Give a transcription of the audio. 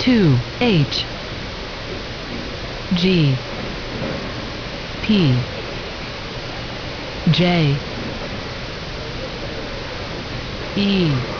2 H G P J E